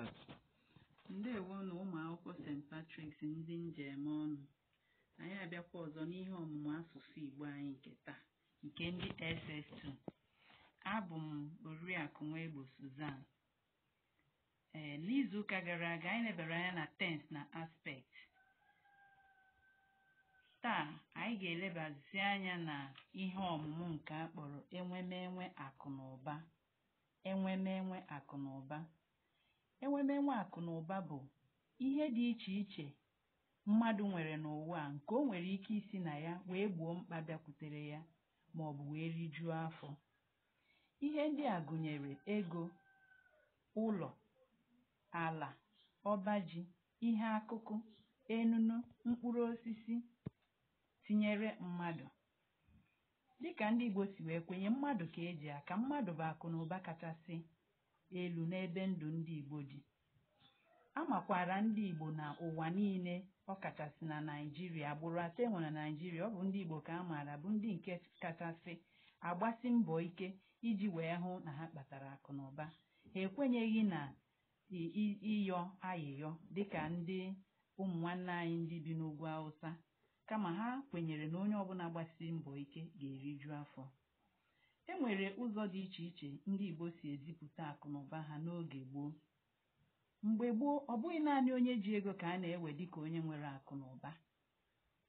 ndị Ndewo na ụmụ akwụkwọ St. Patrick's ndị njem ọnụ anyị abịakwa ọzọ n'ihe ọmụmụ asụsụ Igbo anyị nke taa nke ndị SS2 abụ m Oriakụ Nwegbo Suzan ee n'izuụka gara aga anyị lebara anya na tense na aspect taa anyị ga-elebazi anya na ihe ọmụmụ nke a kpọrọ enwemenwe akụ na ụba enwemenwe akụ na ụba Ewemewụ akụ na ụba bụ ihe dị iche iche mmadụ nwere n'ụwa nke o nwere ike isi na ya wee gbuo mkpa bịakwutere ya maọbụ wee rijuo afọ. Ihe ndị a gụnyere ego, ụlọ, ala, ọba ji, ihe akụkụ, enunu, mkpụrụ osisi, tinyere mmadụ. Dịka ndị Igbo si wee kwenye mmadụ ka e ji aka, mmadụ bụ akụ na ụba kachasị elu n'ebe ndụ ndị Igbo dị. A makwaara ndị Igbo na ụwa niile ọ kachasị na Naịjirịa agbụrụ atọ enwe na Naịjirịa ọ bụ ndị Igbo ka a maara bụ ndị nke kachasị agbasi mbọ ike iji wee hụ na ha kpatara akụ na ụba ha ekwenyeghị na ịyọ ayịyọ dịka ndị ụmụ nwanne anyị ndị bi n'ugwu Awụsa kama ha kwenyere na onye ọbụla gbasiri mbọ ike ga-eriju afọ e nwere ụzọ dị iche iche ndị Igbo si ezipụta akụnụba ha n'oge gboo mgbe gboo ọ bụghị naanị onye ji ego ka a na-ewe dịka onye nwere akụnụba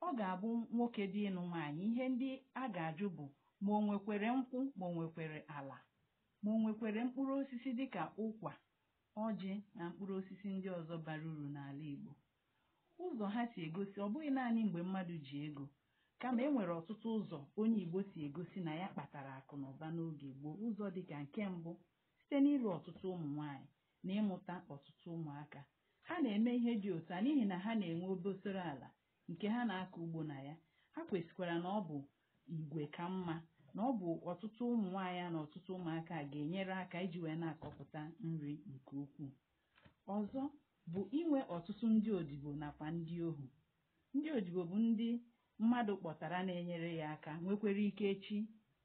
ọ ga-abụ nwoke dị ịnụ nwaanyị ihe ndị a ga-ajụ bụ ma o nwekwere nkwụ ma o nwekwere ala ma o nwekwere mkpụrụ osisi dịka ụkwa ọjị na mkpụrụ osisi ndị ọzọ bara uru n'ala Igbo ụzọ ha si egosi ọ bụghị naanị mgbe mmadụ ji ego kama e nwere ọtụtụ ụzọ onye Igbo si egosi na ya kpatara akụ na ụba n'oge gboo ụzọ dịka nke mbụ site n'ịlụ ọtụtụ ụmụ nwanyị na ịmụta ọtụtụ ụmụaka ha na-eme ihe dị otu a n'ihi na ha na-enwe obosoro ala nke ha na-akọ ugbo na ya ha kwesịkwara na ọ bụ igwe ka mma na ọ bụ ọtụtụ ụmụ nwaanyị na ọtụtụ ụmụaka ga-enyere aka iji wee na-akọpụta nri nke ukwuu ọzọ bụ inwe ọtụtụ ndị odibo nakwa ndị ohu ndị odibo bụ ndị mmadụ kpọtara na-enyere ya aka nwekwara ike echi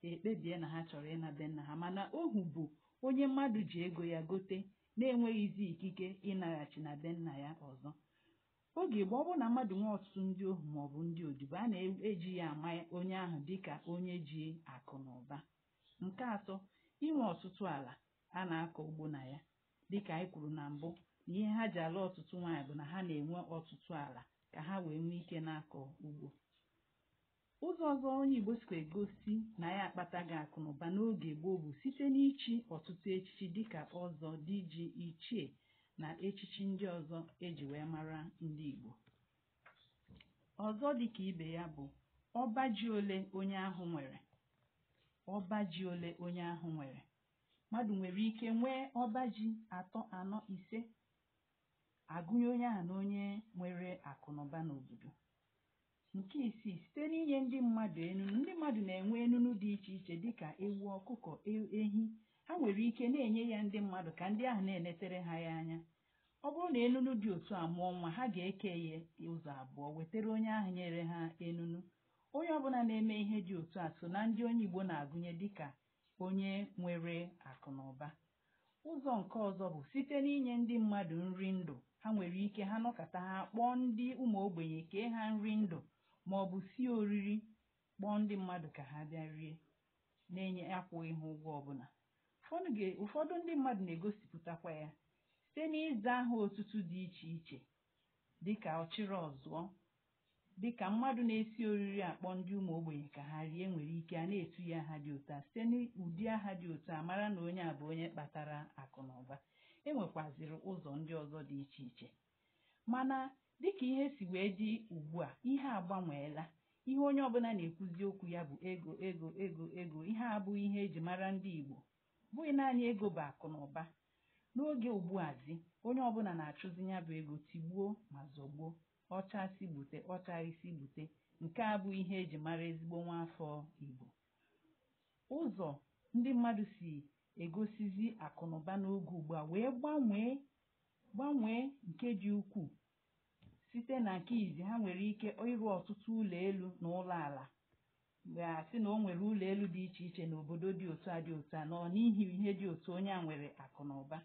ekpebie na ha chọrọ ịnabe nna ha mana ohu bụ onye mmadụ ji ego ya gote na-enweghịzi ikike ịnaghachi na be nna ya ọzọ oge gboo ọ bụrụ na mmadụ nwee ọtụtụ ndị ohu maọbụ ndị odibo a na-eji ya ama onye ahụ dịka onye ji akụ na ụba nke atọ inwe ọtụtụ ala a na-akọ ugbo na ya dịka anyị kwuru na mbụ na ihe ha ji ala ọtụtụ nwaanyị bụ na ha na-enwe ọtụtụ ala ka ha wee nwee ike na-akọ ugbo ọzọ onye Igbo sikwa egosi na ya akpataghị akụ akụnụba n'oge gboo bụ site n'ichi ọtụtụ echichi dịka ọzọ ji ichie na echichi ndị ọzọ eji wee mara ndị Igbo ọzọ dịka ibe ya bụ ọba ji ole onye ahụ nwere ọba ji ole onye ahụ nwere mmadụ nwere ike nwee ọba ji atọ anọ ise agụnye onye a na onye nwere akụnụba n'obodo nke isii site n'inye ndị mmadụ enunu ndị mmadụ na-enwe enunu dị iche iche dịka ewu ọkụkọ e, ehi ha nwere ike na-enye ya ndị mmadụ ka ndị ahụ na-enetere ha ya anya ọ bụrụ na enunu dị otu a mụọ nwa ha ga-eke ya ụzọ abụọ wetara onye ahụ nyere ha enunu onye ọbụla na-eme ihe dị otu a so na ndị onye Igbo na-agụnye dịka onye nwere akụ na ụba ụzọ nke ọzọ bụ site n'inye ndị mmadụ nri ndụ ha nwere ike ha nọkọta ha kpọọ ndị ụmụ ogbenye kee ha nri ndụ màọ̀bụ̀ sie oriri kpọọ ndị mmadụ ka ha bịa rie na-enye akwụghị ha ụgwọ ọbụla ụfọdụ ụfọdụ ndị mmadụ na-egosipụtakwa ya site n'ịza aha otutu dị iche iche dịka ọchịrị ọzụọ dịka mmadụ na-esi oriri akpọ ndị ụmụ ogbenye ka ha rie nwere ike a na-etu ya aha dị otu a site n'ụdị aha dị otu a mara na onye a bụ onye kpatara akụ na ụba enwekwaziri ụzọ ndị ọzọ dị iche iche mana dịka ihe si wee dị ugbu a ihe agbanweela ihe onye ọbụla na-ekwuzi okwu ya bụ ego ego ego ego ihe abụghị ihe eji mara ndị Igbo bụghị naanị ego bụ akụ na ụba n'oge ugbu azi onye ọbụla na-achụzi ya bụ ego tigbuo ma zọgbuo ọchasị gbute ọchaghịsi gbute nke a bụ ihe eji mara ezigbo nwaafọ Igbo ụzọ ndị mmadụ si egosizi akụnụba n'oge ugbu a wee gbanwee gbanwee nke dị ukwuu site na nke izi ha nwere ike ịrụ ọtụtụ ụlọ elu na ụlọ ala mgbe sị na o nwere ụlọ elu dị iche iche na obodo dị otu a dị otu a nọ n'ihi ihe dị otu onye a nwere akụ na ụba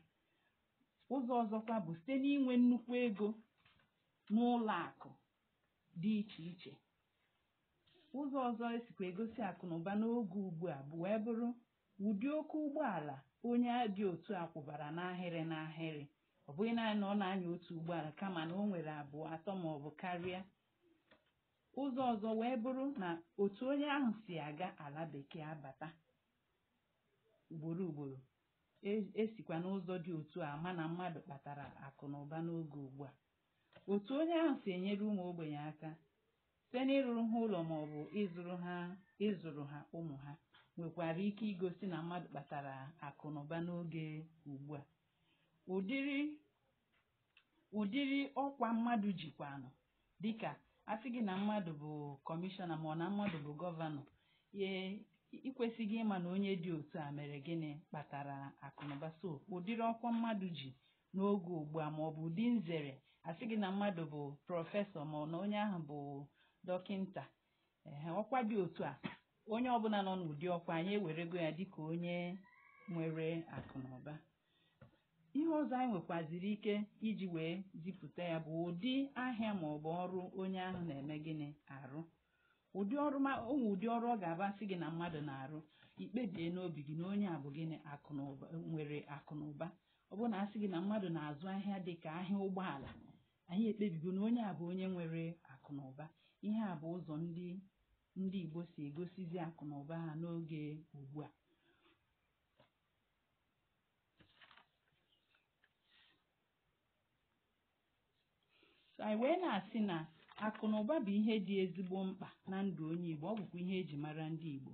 ụzọ ọzọkwa bụ site n'inwe nnukwu ego n'ụlọ akụ dị iche iche ụzọ ọzọ esikwa egosi akụ na ụba n'oge ugbu a bụ wee bụrụ ụdị oke ụgbọala onye dị otu a kwụbara n'ahịrị n'ahịrị ọ bụghị naanị na ọ na-anya otu ụgbọala kama na o nwere abụọ atọ ma ọ bụ karịa ụzọ ọzọ wee bụrụ na otu onye ahụ si aga ala bekee abata ugboro ugboro esikwa e n'ụzọ dị otu a ma na mmadụ kpatara akụ na ụba n'oge ugbu a otu onye ahụ si enyere ụmụ ogbenye aka site n'ịrụrụ ha ụlọ ma ọ bụ ịzụrụ ha ịzụrụ ha ụmụ ha nwekwara ike igosi na mmadụ kpatara akụ na ụba n'oge ugbu a ụdịrị ụdịrị ọkwa mmadụ jikwanụ dịka asị gị na mmadụ bụ kọmishọna ma ọ na mmadụ bụ gọvanọ ye ikwesịghị ịma na onye dị otu a mere gịnị kpatara akụnụba so ụdịrị ọkwa mmadụ ji n'oge ugbu a ma ọ bụ ụdị nzere asị gị na mmadụ bụ prọfesọ ma na onye ahụ bụ dọkịnta ee ọkwa dị otu a onye ọbụla nọ n'ụdị ọkwa anyị ewerego ya dịka onye nwere akụnụba ọzọ anyị nwekwaziri ike iji wee zipụta ya bụ ụdị ahịa maọbụ ọrụ onye ahụ na-eme gịnị arụ ụdị ọrụ onwe ụdị ọrụ ọ ga-abasị gị na mmadụ na-arụ ikpebie n'obi gị na onye a bụ gịnị akụ nwere akụ na ụba ọ bụrụ na asị gị na mmadụ na-azụ ahịa dị ka ahịa ụgbọala anyị ekpebigo na onye a bụ onye nwere akụ na ụba ihe a bụ ụzọ ndị ndị Igbo si egosizi akụ na ụba ha n'oge ugbu a so anyị wee na-asị na akụ bụ ihe dị ezigbo mkpa na ndụ onye Igbo ọ bụkwa ihe eji mara ndị Igbo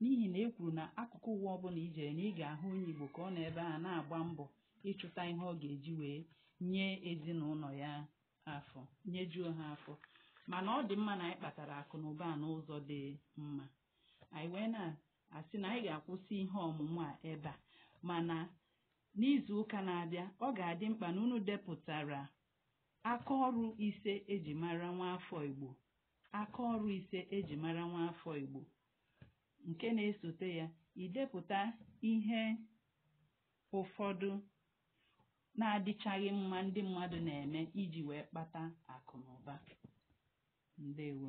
n'ihi na e kwuru na akụkụ ụwa ọbụla ijere na ị ga-ahụ onye Igbo ka ọ nọ ebe a na-agba mbọ ịchụta ihe ọ ga-eji wee nye ezinụlọ ya afọ nyejuo ha afọ mana ọ dị mma na anyị kpatara akụ na ụba n'ụzọ dị mma anyị wee na-asị na anyị ga-akwụsị ihe ọmụmụ a ebe a mana n'izu ụka na-abịa ọ ga-adị mkpa na unu depụtara Akaọrụ ise eji mara afọ Igbo akaọrụ ise eji mara nwa afọ Igbo nke na-esote ya idepụta ihe ụfọdụ na-adịchaghị mma ndị mmadụ na-eme iji wee kpata akụ na ụba ndewo